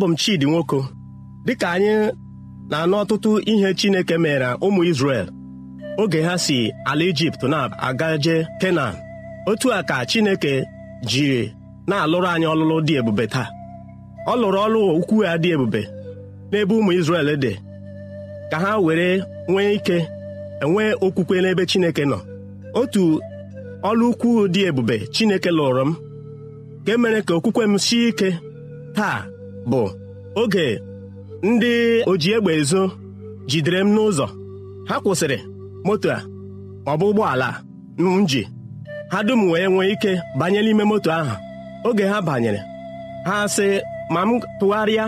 abụ m Chidi Nwoko dịka anyị na-anụ ọtụtụ ihe Chineke mere ụmụ isrel oge ha si ala Ijipt na-agaje Kenan otu a ka Chineke jiri na-alụrụ anyị ọlụlụ dị ebube taa ọ lụrụ ọlụ ukwu ya dị ebube n'ebe ụmụ Izrel dị ka ha were nwee ike enwee okwukwe n'ebe Chineke nọ otu ọlụ ukwu dị ebube Chineke lụrụ m ka emere mere ka okwukwe m sie ike taa bụ oge ndị oji egbe ezo jidere m n'ụzọ ha kwụsịrị moto a ọ ụgbọala m ji ha dum wee nwee ike banye n'ime moto ahụ oge ha banyere ha sị ma m tụgharịa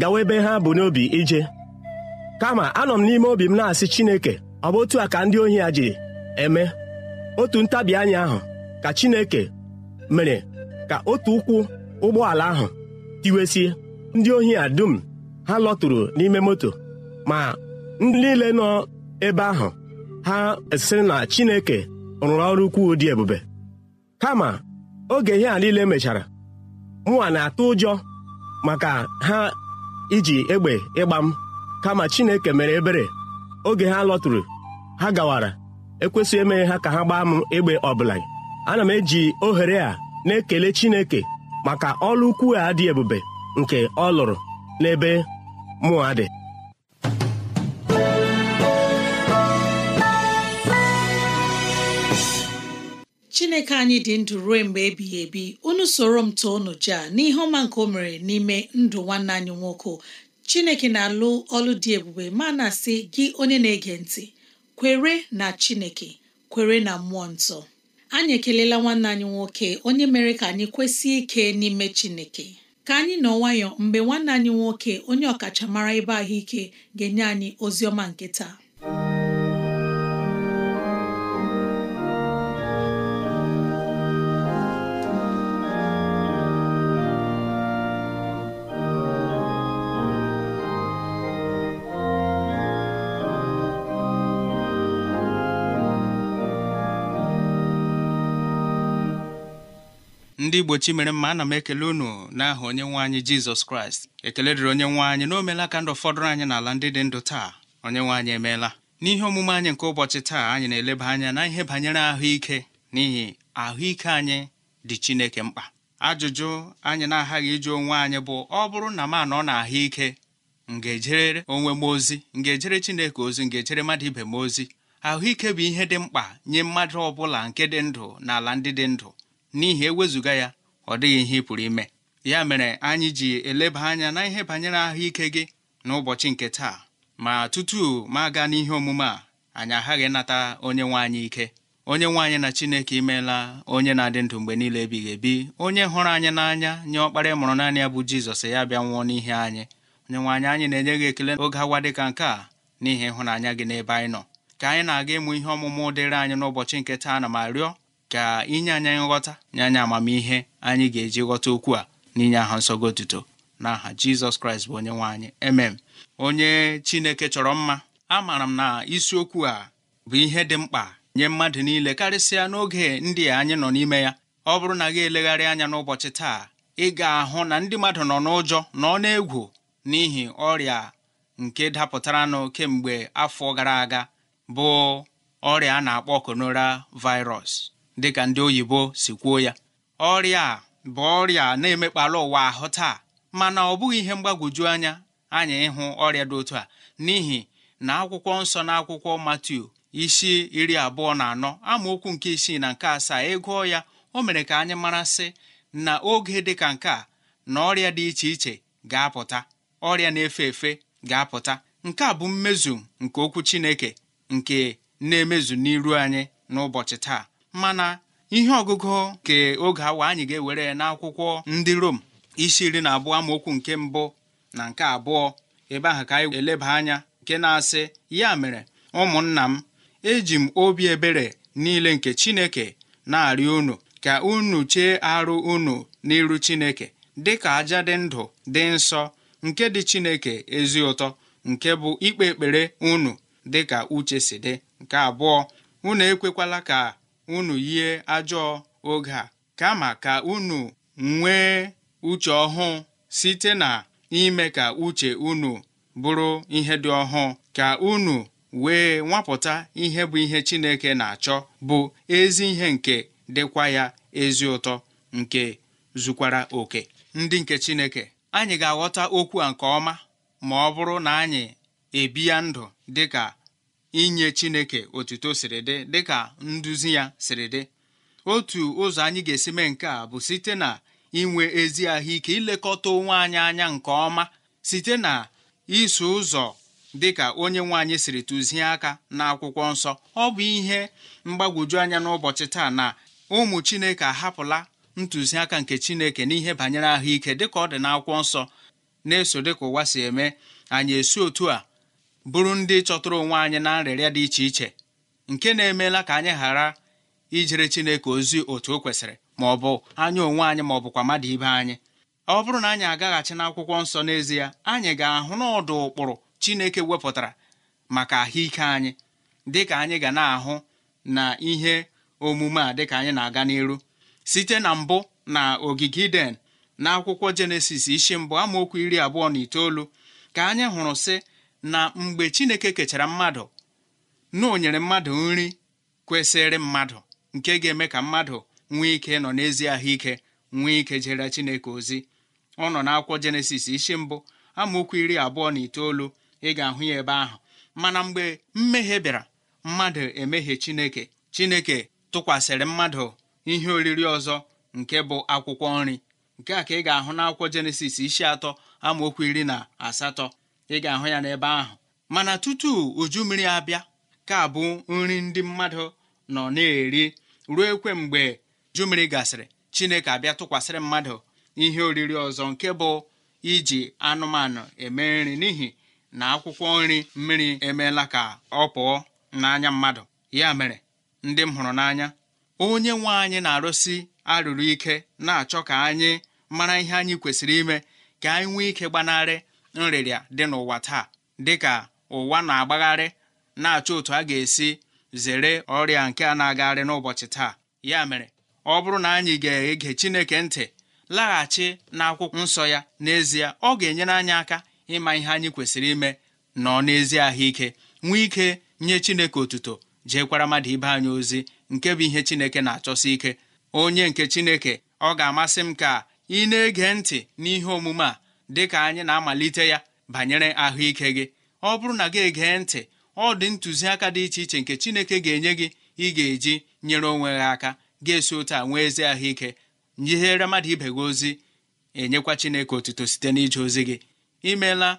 gawa ebe ha bụ n'obi ije kama anọ m n'ime obi m na-asị Chineke ọ bụ otu a ka ndị ohi a ji eme otu ntabi anya ahụ ka Chineke mere ka otu ụkwụ ụgbọala ahụ tiwesie ndị ohi a dum ha lọtụrụ n'ime moto ma ndị niile nọ ebe ahụ ha sịrị na chineke rụrụ ọrụ ukwuu dị ebube kama oge ihe a niile mechara mụwa na-atụ ụjọ maka ha iji egbe ịgba m kama chineke mere ebere oge ha lọtụrụ ha gawara ekwesịghị emeghe ha ka ha gbaa m egbe ọbụla ana m eji ohere a na-ekele chineke maka ọlụ ukwu a dị ebube nke ọ lụrụ n'ebe mụa dị chineke anyị dị ndụ ruo mgbe ebighị ebi unu soro m too unu jaa n'ihe ọma nke o mere n'ime ndụ nwanne anyị nwoke chineke na-alụ ọlụ dị ebube ma na-asị gị onye na-ege ntị kwere na chineke kwere na mmụọ nsọ anyị ekelela nwanne anyị nwoke onye mere ka anyị kwesị ike n'ime Chineke ka anyị nọ nwayọ mgbe nwanne anyị nwoke onye ọkachamara ebe ahụike ga-enye anyị ozi ọma nke taa ndị igbochi mere mma ana m ekele unu n'aha onye nwe anyị jizọs kraịst ekele dịrị onye nwe anyị na o meela ka ndụ fọdụrụ anyị n'ala ndị dị ndụ taa onye nwe anyị emeela n'ihe omume anyị nke ụbọchị taa anyị na-eleba anya na ihe banyere ahụike n'ihi ahụike anyị dị chineke mkpa ajụjụ anyị na-aghaghị ịjụ onwe anyị bụ ọ bụrụ na m anọ na ahụike m ga-ejere onwe m ozi m ga-ejere chineke ozi m ga-ejere mmadụ ibe m ozi ahụike bụ ihe dị mkpa nye mmadụ ọ bụla nke dị ndụ na ala ndị dị ndụ n'ihi ewezụga ya ọ dịghị ihe ị pụrụ ime ya mere anyị ji eleba anya na ihe banyere ahụike gị n'ụbọchị nke taa ma tutu ma aga n'ihe omume a anyị aghaghị nata onye nwe anyị ike onye nwe anyị na chineke imeela onye na-adị ndụ mgbe niile ebighị ebi onye hụrụ anyị n'anya nye ọkpara mụrụ naanị ya bụ jizọs ya bịa nwụọ n'ihe anyị onye nwaanyị anyị na-enye gị ekele oge awa dị ka nke a n'ihi ịhụnanya gị n'ebe anyị nọ ka anyị na-aga ịmụ ihe ọmụmụ dịrị anyị n'ụbọchị nke taa na ma rịọ ka inye anyị nghọta nye anyị amamihe anyị ga-eji ghọta okwu a n'inye aha nsọgo otuto n'aha jizọs kraịst bụ onye nwe anyị emem onye chineke chọrọ mma amaara m na isiokwu a bụ ihe dị mkpa nye mmadụ niile karịsịa n'oge ndị anyị nọ n'ime ya ọ bụrụ na gị elegharị anya n'ụbọchị taa ị ga-ahụ na ndị mmadụ nọ n'ụjọ nọ n'egwu n'ihi ọrịa nke dapụtaranụ kemgbe afọ gara aga bụ ọrịa a na-akpọ konora virus dịka ndị oyibo si kwuo ya ọrịa a bụ ọrịa na-emekpala ụwa ahụ taa mana ọ bụghị ihe mgbagwoju anya anyị ịhụ ọrịa dị otu a n'ihi na akwụkwọ nsọ na akwụkwọ Matiu isi iri abụọ na anọ amaokwu nke isii na nke asaa ịgụọ e ya o mere ka anyị mara sị na oge dị ka nke a na ọrịa dị iche iche ga-apụta ọrịa na-efe efe ga-apụta nke a bụ mmezu nke okwu Chineke nke na-emezu n'iru anyị n'ụbọchị taa mana ihe ọgụgụ nke oge awa anyị ga-ewere n'akwụkwọ ndị Rom isi iri na abụọ amaokwu nke mbụ na nke abụọ ebe ahụ ka anyị eleba anya nke na-asị ya mere ụmụnna m eji m obi ebere niile nke Chineke na-arịọ unu ka unu chee arụ unu n'iru Chineke dị ka aja dị ndụ dị nsọ nke dị Chineke ezi ụtọ nke bụ ikpe ekpere unu dịka uche si dị nke abụọ unu ekwekwala ka unu yie ajọọ oge a kama ka unu nwee uche ọhụụ site na ime ka uche unu bụrụ ihe dị ọhụụ ka unu wee nwapụta ihe bụ ihe Chineke na-achọ bụ ezi ihe nke dịkwa ya ezi ụtọ nke zukwara oke ndị nke Chineke anyị ga-aghọta okwu a nke ọma ma ọ bụrụ na anyị ya ndụ dịka inye chineke otuto siri dị dịka nduzi ya siri dị otu ụzọ anyị ga-esi mee nke a bụ site na inwe ezi ahụike ilekọta onwe anyị anya nke ọma site na iso ụzọ dịka onye nwe siri tụzie aka n'akwụkwọ nsọ ọ bụ ihe mgbagwoju anya n'ụbọchị taa na ụmụ chineke ahapụla ntụziaka nke chineke n'ihe banyere ahụike dịka ọ dị n'akwụkwọ nsọ na-eso dịka ụwa si eme anyị esi otu a bụrụ ndị chọtụrụ onwe anyị na nrịrịa dị iche iche nke na-emeela ka anyị ghara ijere Chineke ozi otu o kwesịrị ma ọ bụ anya onwe anyị ma ọ bụkwa mmadụ ibe anyị ọ bụrụ na anyị agaghachi n'akwụkwọ nsọ n'ezie anyị ga-ahụ n'ọdụ ụkpụrụ Chineke wepụtara maka ahụike anyị dịka anyị ga na-ahụ na ihe omume a dịka anyị na-aga n'iru site na mbụ na ogige Iden na akwụkwọ Jenesis isi mbụ amaokwu iri abụọ na itoolu ka anyị hụrụ sị na mgbe chineke kechara mmadụ na o nyere mmadụ nri kwesịrị mmadụ nke ga-eme ka mmadụ nwee ike nọ n'ezi ahụike nwee ike jere chineke ozi ọ nọ n'akwụkwọ jenesis isi mbụ amaokwu iri abụọ na itoolu ị ga-ahụ ya ebe ahụ mana mgbe mmehie bịara mmadụ emehie chineke chineke tụkwasịrị mmadụ ihe oriri ọzọ nke bụ akwụkwọ nri nke a ka ị ga-ahụ n'akwụkwọ jenesis isi atọ amaokwu iri na asatọ ị ga-ahụ ya n'ebe ahụ mana tutu uju mmiri abịa ka bụ nri ndị mmadụ nọ na-eri ruo ekwe mgbe uju mmiri gasịrị chineke abịa tụkwasịrị mmadụ ihe oriri ọzọ nke bụ iji anụmanụ eme nri n'ihi na akwụkwọ nri mmiri emeela ka ọ pụọ n'anya mmadụ ya mere ndị m hụrụ n'anya onye nwe anyị na-arụsi arụrụ ike na-achọ ka anyị mara ihe anyị kwesịrị ime ka anyị nwee ike gbanarị nrịrịa dị n'ụwa taa dịka ụwa na-agbagharị na-achọ otu a ga-esi zere ọrịa nke a na-agagharị n'ụbọchị taa ya mere ọ bụrụ na anyị ga-ege Chineke ntị laghachi n'akwụkwọ nsọ ya n'ezie ọ ga-enyere anyị aka ịma ihe anyị kwesịrị ime nọ n'ezie ahụike nwee ike nye Chineke otuto jeekwara mmadụ ibe anyị ozi nke bụ ihe Chineke na-achọsi ike onye nke Chineke ọ ga-amasị m ka ị na-ege ntị n'ihe omume a dị ka anyị na-amalite ya banyere ahụike gị ọ bụrụ na gị egee ntị ọ dị ntụziaka dị iche iche nke Chineke ga-enye gị ị ga-eji nyere onwe gị aka ga-esi ụta nwee ezi ahụike nyihere mmadụ ibe gị ozi enyekwa Chineke otuto site n'ije ozi gị imeela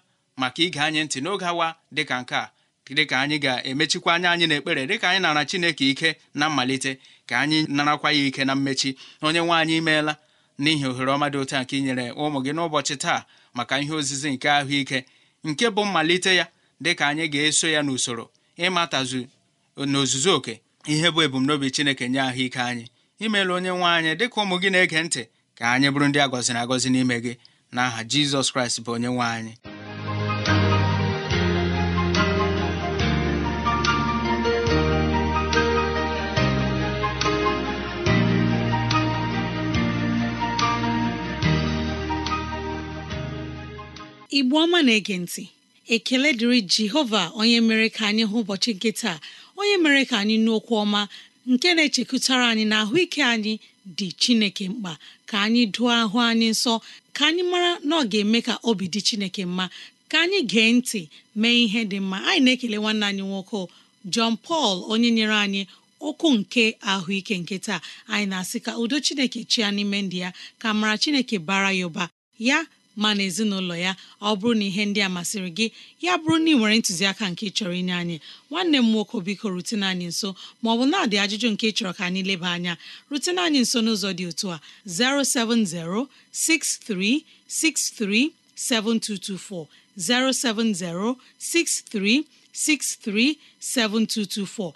maka ige anyị ntị n'oge awa dịka nke a dịka anyị ga-emechikwa anya anyị n'ekpere dịka anyị nara Chineke ike na mmalite ka anyị narakwa ya ike na mmechi onye nwe anyị imeela n'ihi ohere ọma dị nke inyere ụmụ gị n'ụbọchị taa maka ihe ozizi nke ahụike nke bụ mmalite ya dị ka anyị ga-eso ya n'usoro ịmatazu n'ozuzu oke ihe bụ ebumnobi Chineke nye ahụike anyị imeela onye nwe anyị dịka ụmụ gị na-ege ntị ka anyị bụrụ ndị agọziri agọzi n'ime gị n'aha Jizọs Kraịst bụ onye nwe anyị igbo ọma na-ege ntị ekele dịrị jehova onye mere ka anyị hụ ụbọchị nke taa onye mere ka anyị nụ okwu ọma nke na-echekụtara anyị na ahụike anyị dị chineke mkpa ka anyị dụọ ahụ anyị nsọ ka anyị mara na ọ ga-eme ka obi dị chineke mma ka anyị gee ntị mee ihe dị mma anyị na-ekele nwanne anyị nwoke John pal onye nyere anyị okwu nke ahụike nke taa anyị na-asị ka udo chineke chia n'ime ndị ya ka mara chineke bara ya ụba ya ma na ezinụlọ ya ọ bụrụ na ihe ndị a masịrị gị ya bụrụ na ị nwere ntụziaka nke chọrọ inye anyị nwanne m nwoke biko rutene anyị nso ma ọ bụ na-adị ajụjụ nke chọrọ ka anyị leba anya rutene anyị nso n'ụzọ dị otu a 07063637224 07063637224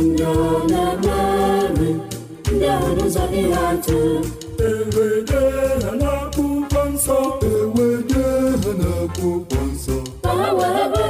ndị ọ na-emere ndị ahụ n'ụzọ ihe atụ ewede ha nsọ nsọ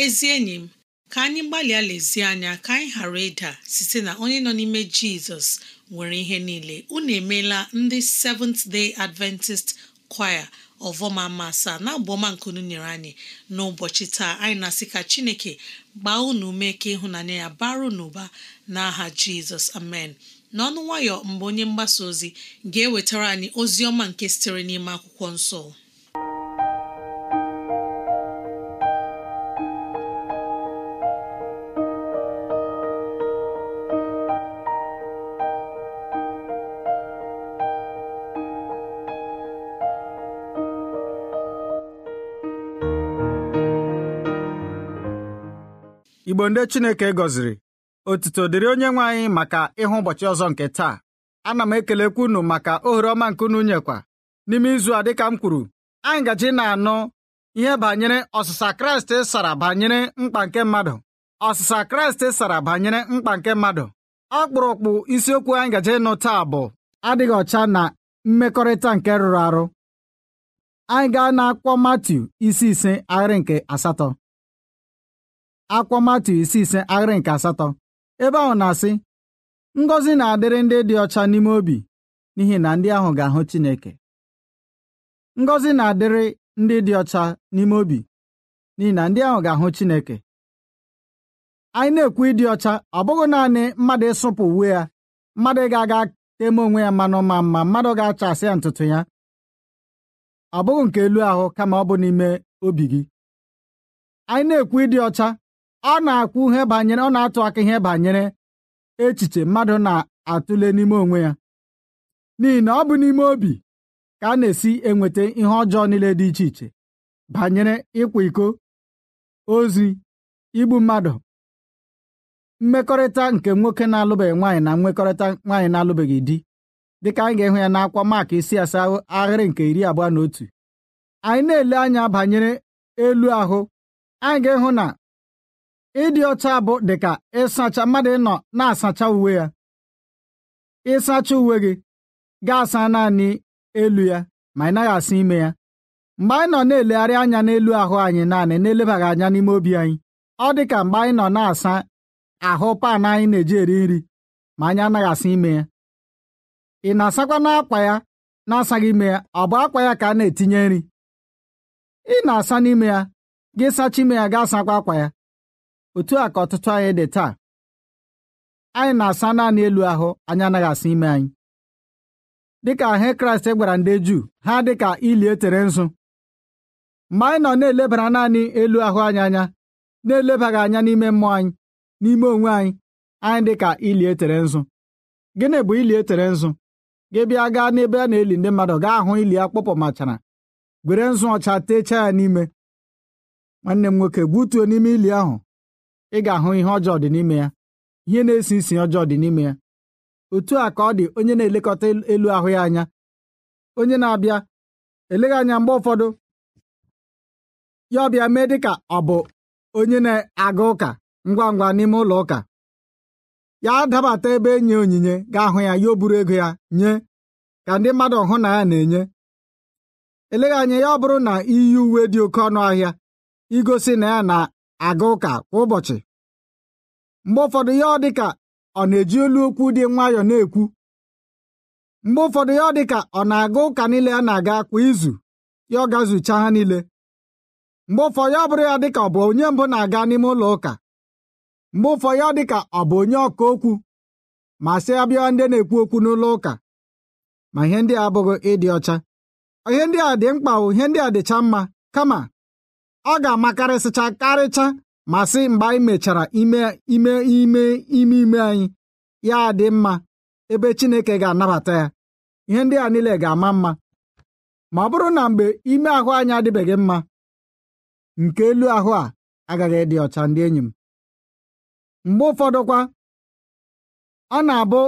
ezi enyi m ka anyị gbalịa lezie anya ka anyị ghara ịda site na onye nọ n'ime jizọs nwere ihe niile unu emeela ndị Seventh Day Adventist Choir ọvọma masa na abụọma nkunu nyere anyị n'ụbọchị taa anyị na-asị ka chineke gbaa unu ume ka ịhụnanya ya bara n'ụba n'aha jizọs amen n'ọnụ nwayọ mgbe onye mgbasa ozi ga-ewetara anyị ozi ọma nke sitere n'ime akwụkwọ nsọ igbo ndị chineke gọziri otuto dịrị onye nwe anyị maka ịhụ ụbọchị ọzọ nke taa ana m ekelekwu unu maka ohere ọma nke unu nyekwa n'ime izu a dịka m kwuru anyị gaji na-anụ ihe banyere ọsịsa kraịst e sara banyere mkpa nke mmadụ ọsịsa kraịst e sara banyere mkpa nke mmadụ ọkpụrụkpụ isiokwu anyị gaji ịnụ taa bụ adịghị ọcha na mmekọrịta nke rụrụ arụ anyị gaa na akwụkwọ Matiu isi ise ahịrị nke asatọ akwa matu isi ise ahịrị nke asatọ ebe ahụ na-asị ngọzi na-adịrị ndị dị ọcha n'ime obi n'ihi na ndị ahụ ga-ahụ Chineke ngọzi na-adịrị ndị dị ọcha n'ime obi n'ihi na ndị ahụ ga-ahụ Chineke anyị na-ekwu ịdị ọcha ọ bụghị naanị mmadụ ịsụpụ uwe ya mmadụ ga-aga eme onwe ya mmanụ ma mma mmadụ ga-achasị ya ntutu ya ọ bụghị nke elu ahụ kama ọ bụ n'ime obi gị anyị na-ekwu ịdị ọcha ọ na-akwụ ihe banyere ọ na-atụ aka ihe banyere echiche mmadụ na-atụle n'ime onwe ya n'ihi na ọ bụ n'ime obi ka a na-esi enweta ihe ọjọọ niile dị iche iche banyere ịkwa iko ozi igbu mmadụ mmekọrịta nke nwoke na-alụbeghị nwaanyị na mmekọrịta nwaanyị na-alụbeghị di dịka anyị ga-ehụ ya n'akwa maka isi asaa ahịrị nke iri abụọ na otu anyị na-ele anya banyere elu ahụ anyị ga ịhụ na ịdị ọcha bụ dịka ịsacha mmadụ ịnọ na-asacha uwe ya ịsacha uwe gị ga-asa naanị elu ya ma ị naghị asa ime ya mgbe anyị nọ na-elegharị anya n'elu ahụ anyị naanị na-elebaghị anya n'ime obi anyị ọ dị ka mgbe anyị nọ na-asa ahụ pan anyị na-eji eri nri ma anyị anaghị asa ime ya ị na-asakwa n'akwa ya na-asaghị ime ya ọ bụ akwa ya ka a na-etinye nri ị na-asa n'ime ya gị sacha ime ya gaa sakwa akwa ya otu a ka ọtụtụ anyị dị taa anyị na-asa naanị elu ahụ anyị anaghị asa ime anyị dịka ahụ kraịst gwara ndị juu ha dịka ili etere nzu mgbe anyị nọ na-elebara naanị elu ahụ anyị anya na-elebaghị anya n'ime mmụọ anyị n'ime onwe anyị anyị dịka ili etere nzu gịnị bụ ili etere nzu gị bịa gaa n'ebe a na-eli ndị mmadụ gaa ahụ ili a machara, gwere nzu ọcha techaa ya n'ime nwanne m nwoke gbutuo n'ime ili ahụ ị ga-ahụ ihe ọjọọ dị n'ime ya ihe na-esi isi ọjọọ dị n'ime ya otu a ka ọ dị onye na-elekọta elu ahụ ya anya onye na-abịa eleghị anya mgbe ụfọdụ ya ọbịa mee dị ka ọ bụ onye na-aga ụka ngwa ngwa n'ime ụlọ ụka ya dabata ebe enye onyinye ga-ahụ ya ya oburu buru ego ya nye ka ndị mmadụ hụ na ya na-enye eleghị anya ya ọ bụrụ na iyi e uwe dị oke ọnụ ahịa igosi na ya na aga ụka kwa ụbọchị mgbe ụfọdụ ya ọ dị ka ọ na-eji olu okwu dị nwayọọ na-ekwu mgbe ụfọdụ ya ọ dị ka ọ na-aga ụka niile a na-aga kwa izu ya ọ gazucha ha niile mgbe ụfọdụ ya bụrụ ya dị ka ọ bụ onye mbụ na-aga n'ime ụlọ ụka mgbe ụfọdụ ya dị ka ọ bụ onye ọka okwu ma sị abịa ndị na-ekwu okwu n'ụlọ ụka ma ihe ndị a abụghị ịdị ọcha ihe ndị a dị mkpa ihe ndị a dịcha mma kama ọ ga-amakarịsịcha karịcha ma sị mgbe anyị mechara ime ime ime ime ime anyị ya dị mma ebe Chineke ga-anabata ya ihe ndị a niile ga-ama mma ma ọ bụrụ na mgbe ime ahụ anyị adịbeghị mma nke elu ahụ a agaghị ịdị ọcha ndị enyi m mgbe ụfọdụkwa ọ na-abụ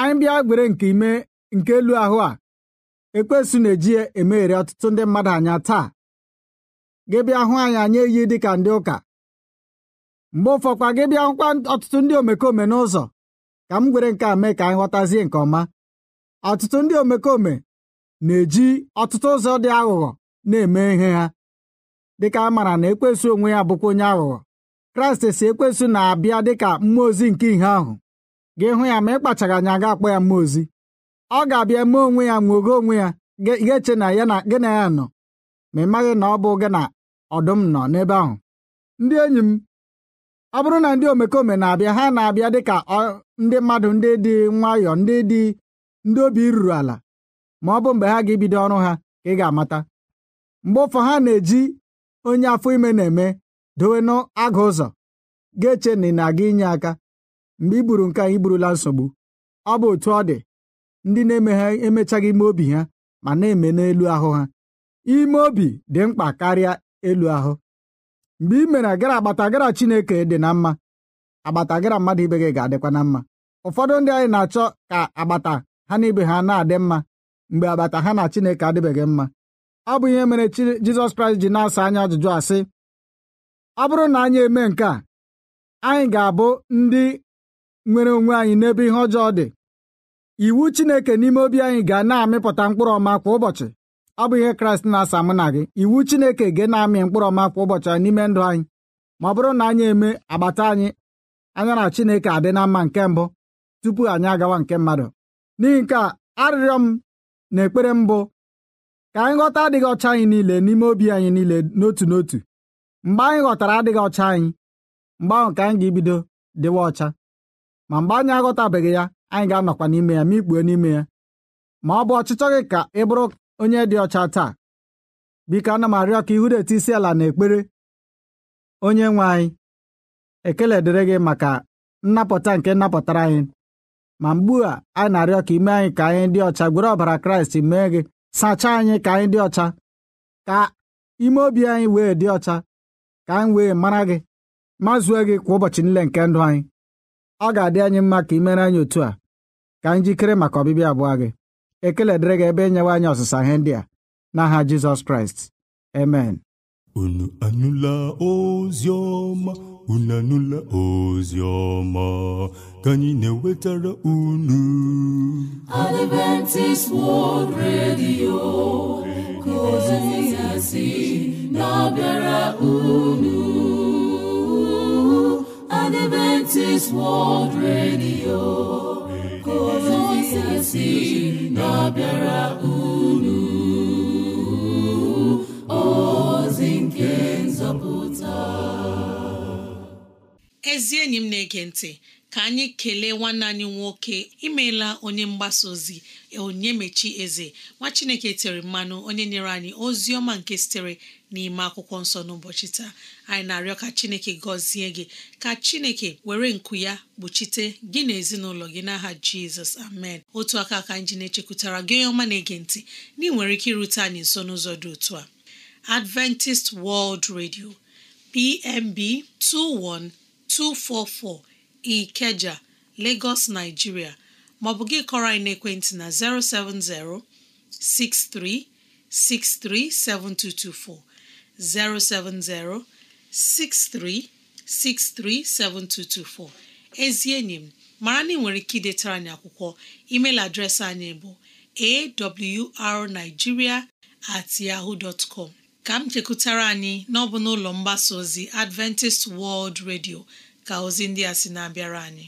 anyị bịa gwere nke nke elu ahụ a ekpesu na-eji emeghere ọtụtụ ndị mmadụ anya taa gị bịa hụ anyị anyị eyi dị ka ndị ụka mgbe ụfọkwa gị bịa hụkwa ọtụtụ ndị omekome n'ụzọ ka m gwere nke a mee ka anyị ghọtazie nke ọma ọtụtụ ndị omekome na-eji ọtụtụ ụzọ dị aghụghọ na-eme ihe ha dịka a maara na ekwesu onwe ya bụkwa onye aghụghọ kraịst si ekwesu na-abịa dịka mmụọ ozi nke ihe ahụ gị hụ ya ma ị anya ga akpọ ya mmụọ ozi ọ ga-abịa mee onwe ya nwogo onwe ya gị eche na ya na gị na ya nọ ma ị maghị na ọ bụ gị na ọdụm nọ n'ebe ahụ ndị enyi m ọ bụrụ na ndị omekome na-abịa ha na-abịa dị ka ndị mmadụ ndị dị nwayọ ndị dị ndị obi ruru ala ma ọ bụ mgbe ha ga-ebido ọrụ ha ka ị ga-amata mgbe ụfọ ha na-eji onye afọ ime na-eme dowe n'agụ ụzọ ga-eche na ị na-aga inye aka mgbe i gburu nke a i burula nsogbu ọ bụ otu ọ dị ndị na-eme ha emechaghị ime obi ha ma na-eme n'elu ahụ ha ime obi dị mkpa karịa elu ahụ mgbe ị mere agara agbata agara Chineke dị na mma agbata agara mmadụ ibe gị ga-adịkwa na mma ụfọdụ ndị anyị na-achọ ka agbata ha na ibe ha na-adị mma mgbe agbata ha na Chineke adịbeghị mma ọ bụ ihe mere Jizọs Kraịst ji na-asa anyị ajụjụ asị ọ bụrụ na anyị eme nke a anyị ga-abụ ndị nwere onwe anyị n'ebe ihe ọjọọ dị iwu Chineke n'ime obi anyị ga na-amịpụta mkpụrụ ọma kwa ụbọchị ọ bụ ihe kraịst na-asa mụ na gị iwu chineke gị na-amị mkpụrụ ọma kwa ụbọchị anyị n'ime ndụ anyị ma ọ bụrụ na anyị eme agbata anyị anya na chineke adị na mma nke mbụ tupu anyị agawa nke mmadụ n'ihi nke a arịrịọ m na ekpere mbụ ka anyị ghọta adịghị ọcha anyị niile n'ime obi anyị niile n'otu n'otu mgbe anyị ghọtara adịghị ọcha anyị mgbe ahụ ka anyị ga-ebido dịwa ọcha ma mgbe anyị aghọtabeghị ya anyị ga-anọkwa n'ime ya ma ikpuo n'ime ya ma ọ bụ ọchịchọ gị ka ị bụrụ onye dị ọcha taa biko ana m arịọ ka ihu etu isi ala na ekpere onye nwe anyị ekele dịrị gị maka nnapụta nke nnapụtara anyị ma mgbu a anyị na-arịọ ka ime anyị ka anyị dị ọcha gwere ọbara kraịst mee gị sachaa anyị ka anyị dị ọcha ka ime obi anyị wee dị ọcha ka anyị wee mara gị ma zue gị kwa ụbọchị nle nke ndụ anyị ọ ga-adị anyị mma ka imere anyị otu a ka anyị jikere maka ọbịbịa abụọ gị ekele dịrị gị ebe enyewa anyị ọsịsa ihe ndị a n'aha jizọs kraịst amen unu anụla ozi ọma unu anụla ozi ọma ka anyị na-ewetara unu Adventist World Radio ka ozi ya si na-abịara unu Adventist World Radio ka ozi asị na-abịara unu ozi nke nzọpụta ezi enyi m na-ege ntị ka anyị kelee nwanne anyị nwoke imeela onye mgbasa ozi onye mechi eze nwa chineke tere mmanụ onye nyere anyị ozi ọma nke sitere n'ime akwụkwọ nsọ n'ụbọchị taa anyị na-arịọ ka chineke gọzie gị ka chineke were nku ya kpuchite gị na ezinụlọ gị n'aha jizọs amen otu aka ka anyị ji na-echekwutara gị onye ọma na-ege ntị na nwere ike irute anyị nso n'ụzọ dị otu a Adventist World Radio PMB 21244 Ikeja Lagos Nigeria maọbụ gị kọrọ anyị n'ekwentị na 070 6363 7224 070 6363 7224 ezi enyi m mara na ị nwere ike idetara anyị akwụkwọ email adreesị anyị bụ awrnigeria ka m chekwutara anyị n'ọbụ n'ụlọ mgbasa ozi Adventist World Radio ka ozi ndị a si na-abịara anyị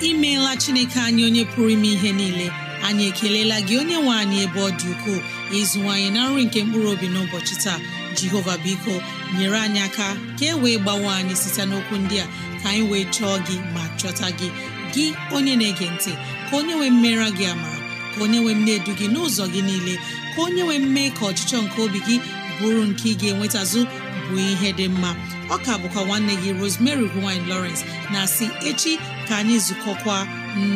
imeela chineke anyị onye pụrụ ime ihe niile anyị ekelela gị onye nwe anyị ebe ọ dị ukwuu ukoo ịzụwanyị na nri nke mkpụrụ obi n'ụbọchị taa jehova biko nyere anyị aka ka e wee gbawe anyị site n'okwu ndị a ka anyị wee chọọ gị ma chọta gị gị onye na-ege ntị ka onye nwee mmera gị ama ka onye nwee m na-edu gị n'ụzọ gị niile ka onye nwee mme ka ọchịchọ nke obi gị bụrụ nke ị ga-enwetazụ bụ ihe dị mma ọka bụkwa nwanne gị Rosemary gine Lawrence na si echi ka anyị zukọkwa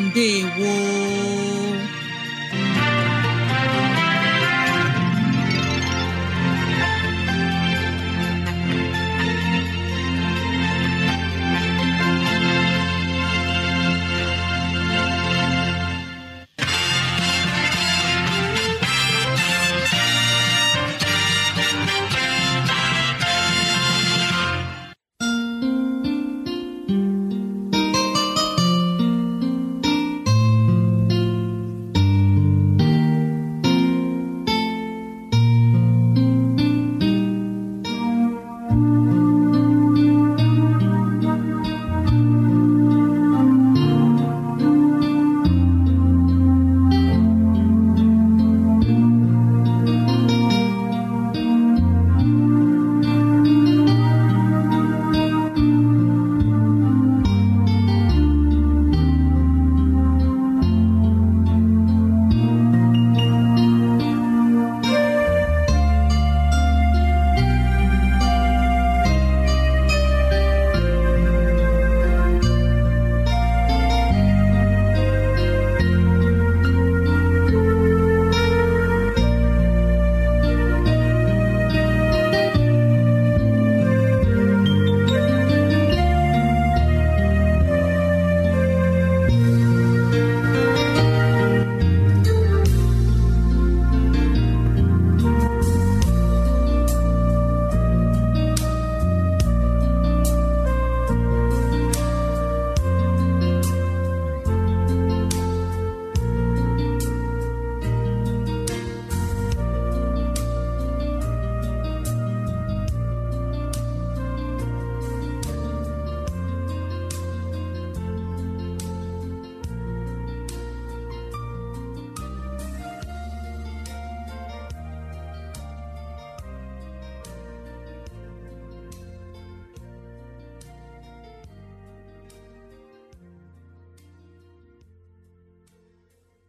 mbe woo